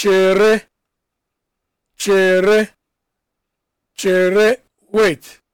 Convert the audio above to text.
chere chere chere wait